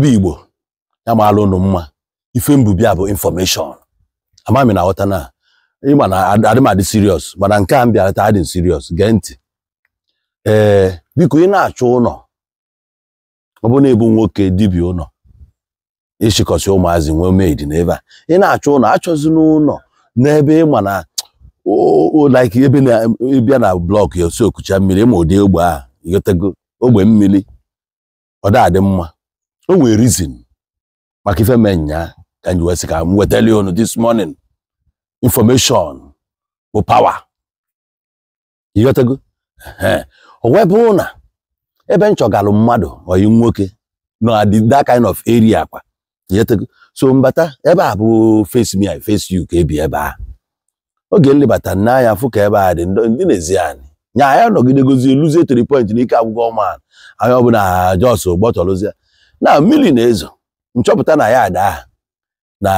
ebe igbo ya maalụ unu mma ife mbubia bụ infọmeshọn amami na aghọta na ịma na adị m adị mana nke a mbịa bịarata adị siriọs gee ntị ee biko ị na achụ ụlọ ọ bụ na-ebu nwoke dibia ụlọ ịchịkọsị ụmụazị nwee meid n'ebe a ị na-achọ ụlọ achọzi n'ụlọ n'ebe ịma na like ebe na-ebịa na blọk ya osi okucha mmiri ma ụdị ogbe a ogbe mmiri ọ da adị mma o nwere reason maka ife mee nya ka anyị wee sị ka m wetali unu this morning information bụ power ịghọtago o wee bụrụ na ebe nchọgalụ mmadụ oyi nwoke na that kind of area kwa ịghọtago so mbata ebe a bụ face me I face you ka ebi ebe a oge nlebata n'anya fụ ka ebe a dị ndị na-ezi anyị nya anyị nọgidegozi luzie tiri point n'ike agwụgwọ ọma anyị ọbụla jos gbọtọrụzie na mmiri na-ezo nchọpụta na ya daa na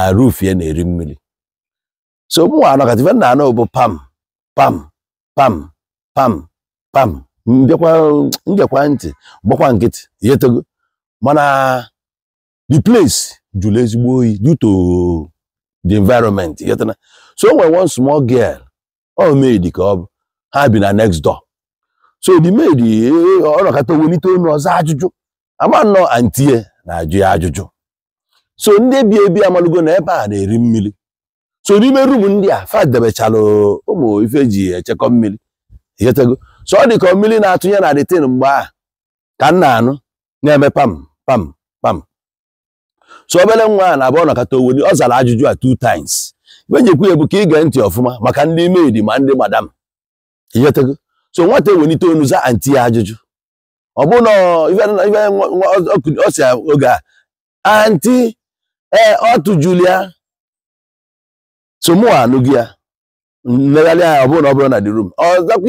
ya na-eri mmiri so mụnwa anọkatife nna anọ bụ pam pam pam pam pam mbịakwa ntị gbakwa nkịtị yetego mana the place jụrụ ezigbo oyi due to the environment yetana so nwere one small girl ọ maid ka ọ bụ ha bi na next door so the maid e, e, ọ nọkata welite onu ọzọ ajụjụ ama nnọọ antie na-ajụ ya ajụjụ so ndị ebi ebi amalugo na ebe a na-eri mmiri so n'ime rumu ndị a fadebechala ụmụ ife ji echekọ mmiri echetego so ọ dị mmiri na-atụnye na detin mgbe a ka m na-anụ na-eme pam pam pam so obere nwa a na-abụ nakọta owe ọ zara ajụjụ a two times ibe njekwu ya bụ ka ịge ntị ọfụma maka ndị maid ma ndị madam echetego so nwata ewelite onu za anti ajụjụ ọ bụ na oge a anti ee ọ tụjụrụ ya somu ya mmegharị ọ bụrụ na ọ bụrụ na dị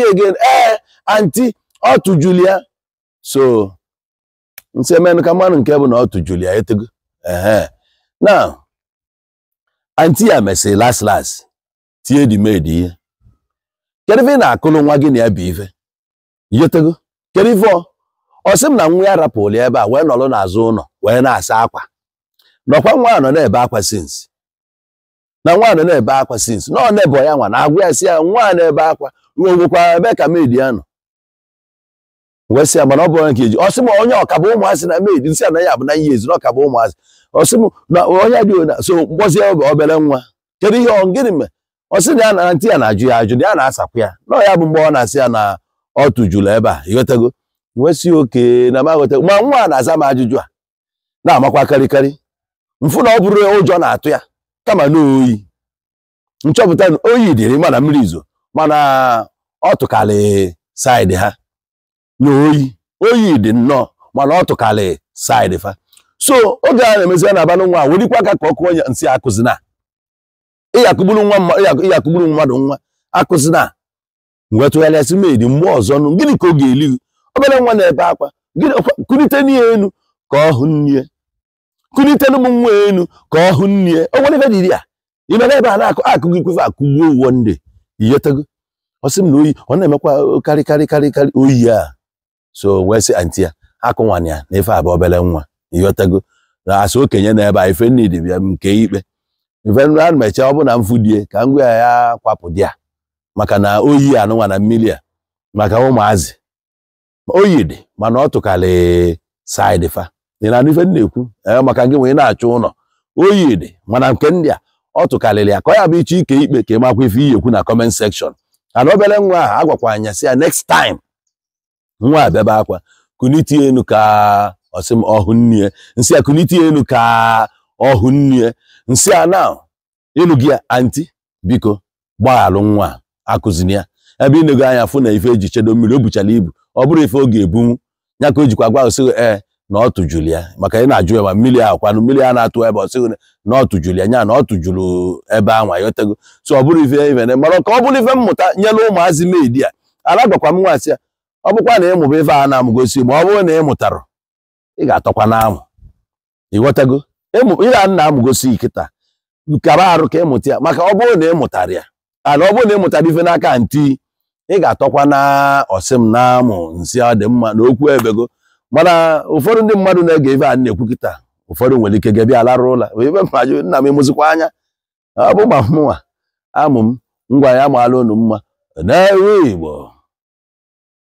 ọ ee anti ọ so emenụ ka mmanụ nke bụ na ọ tụjụrụ etego anti ya mesịrị las las tie edimedi ihe kedu ife ị na-akụrụ nwa gị na ya bụ ife yetego kedu ife ọ ọ sị m na nwa ya rapụrụ ebe a wee nọrọ n'azụ ụlọ wee na-asa akwa nọkwa nwa nọ na-ebe akwa sinsi na nwa nọ na-ebe akwa sinsi na ọ na-ebe ya nwa na-agwa ya si ya nwa a na-ebe akwa ruo nwekwara ebe ka maid ya nọ wee sị ya mana ọ bụrụ nke iji ọ m onye ọkaba ụmụazị na maid nsị na ya bụ na ihe ezi na ọkaba ụmụazị ọ sị m na onye dị so mkpọzie obere nwa kedu ihe gịnị mee ọ na ya na ntị ya na-ajụ ya ajụ na ya na-asakwa ya na ọ ya bụ mgbe ọ na-asị ya na ọ tụjụrụ ebe a ịghọtago nwesị oke na maghọta ma nwa na-aza m ajụjụ a na-amakwa karịkarị mfụ na ọ bụrụ ụjọ na-atụ ya kama na oyi nchọpụta na oyi dịrị mana mmiri izo mana ọ tụkalị saịdị ha na oyi oyi dị nnọọ mana ọ tụkalị saịdị fa so oge a na-emezi na-aba nwa a werikwa aka ka ọ kụọ ya nsị akụzina ịyakụgburu nwa ịyakụgburu mmadụ nwa akụzina wee tụgharịasị dị mmụọ ọzọ nụ gịnị ka ọ ga-eli obere nwa na-ebe akwa kulite n'ihe enu ka ọ hụ nne kunite n'ụmụ nwa elu ka ọ hụ nne o nwere ebe dịrị ya imere ebe a na-akụ akụ gị kwefe akụgbuo uwe ndị iyetego ọ sị m na oyi ọ na-emekwa karị karị karị karị oyi a so wee sị anti ya akụ ya na ife abụ obere nwa iyotego na asị okenye na ebe a ife dị bịa nke ikpe ife nri a mechaa ọ bụla na mfudie ka ngwa ya ya kwapụ di ya maka na oyi anụnwa na mmiri a maka ụmụazị oyidi mana ọ tụkara saịdị fa ị na-anụ ife na-ekwu maka gị wee na-achọ ụlọ oyidi mana nke ndị a ọ tụkarịrị ya ka ọ ya bụ iche ike ikpe ka ịmakwa ife iyi ekwu na comment section ana obere nwa a, agwakwa anya sị ya next time nwa a bịaba akwa kuniti elu ka ọsịm ọhụ nnie nsị a kuniti elu ka ọhụ nnie nsị a na ịlụ gị anti biko gbaghalụ nwa akụzi ya ebe ị na anya fụ na ife eji chedo mmiri o buchara ibu ọ bụrụ ife oge ebunwu ya ka o jikwa gwa osịghị ee na ọ ya maka ị na-ajụ ya ma mmiri a kwanụ mmiri a na-atụ ebe ọsịghị na ọ tụjụrụ ya na ọ tụjụrụ ebe anwa yotego so ọ bụrụ ife ivene mara ka ọ bụrụ ife mmụta nyela ụmụazị medi a ala gwakwa m nwaasị ya ọ bụkwa na ịmụba ife a na-amụgosi ma ọ bụrụ na ị ị ga-atọkwa na ịghọtago ị ga-ana amụgosi nkịta kara arụ ka ịmụta ya maka ọ bụrụ na ị mụtara ya ana ọ bụrụ na ị mụtara ife n'aka nti ị ga-atọkwa na ọsị m na-amụ nsị ọ dị mma n'okwu okwu ebego mana ụfọdụ ndị mmadụ na-ege ebe a na-ekwu kịta ụfọdụ nwere ike gebe larụ ụla ibe maju nna m emụzikwa anya ọ bụ ma mụnwa amụ m ngwa ya maala unu mma na-ewe Igbo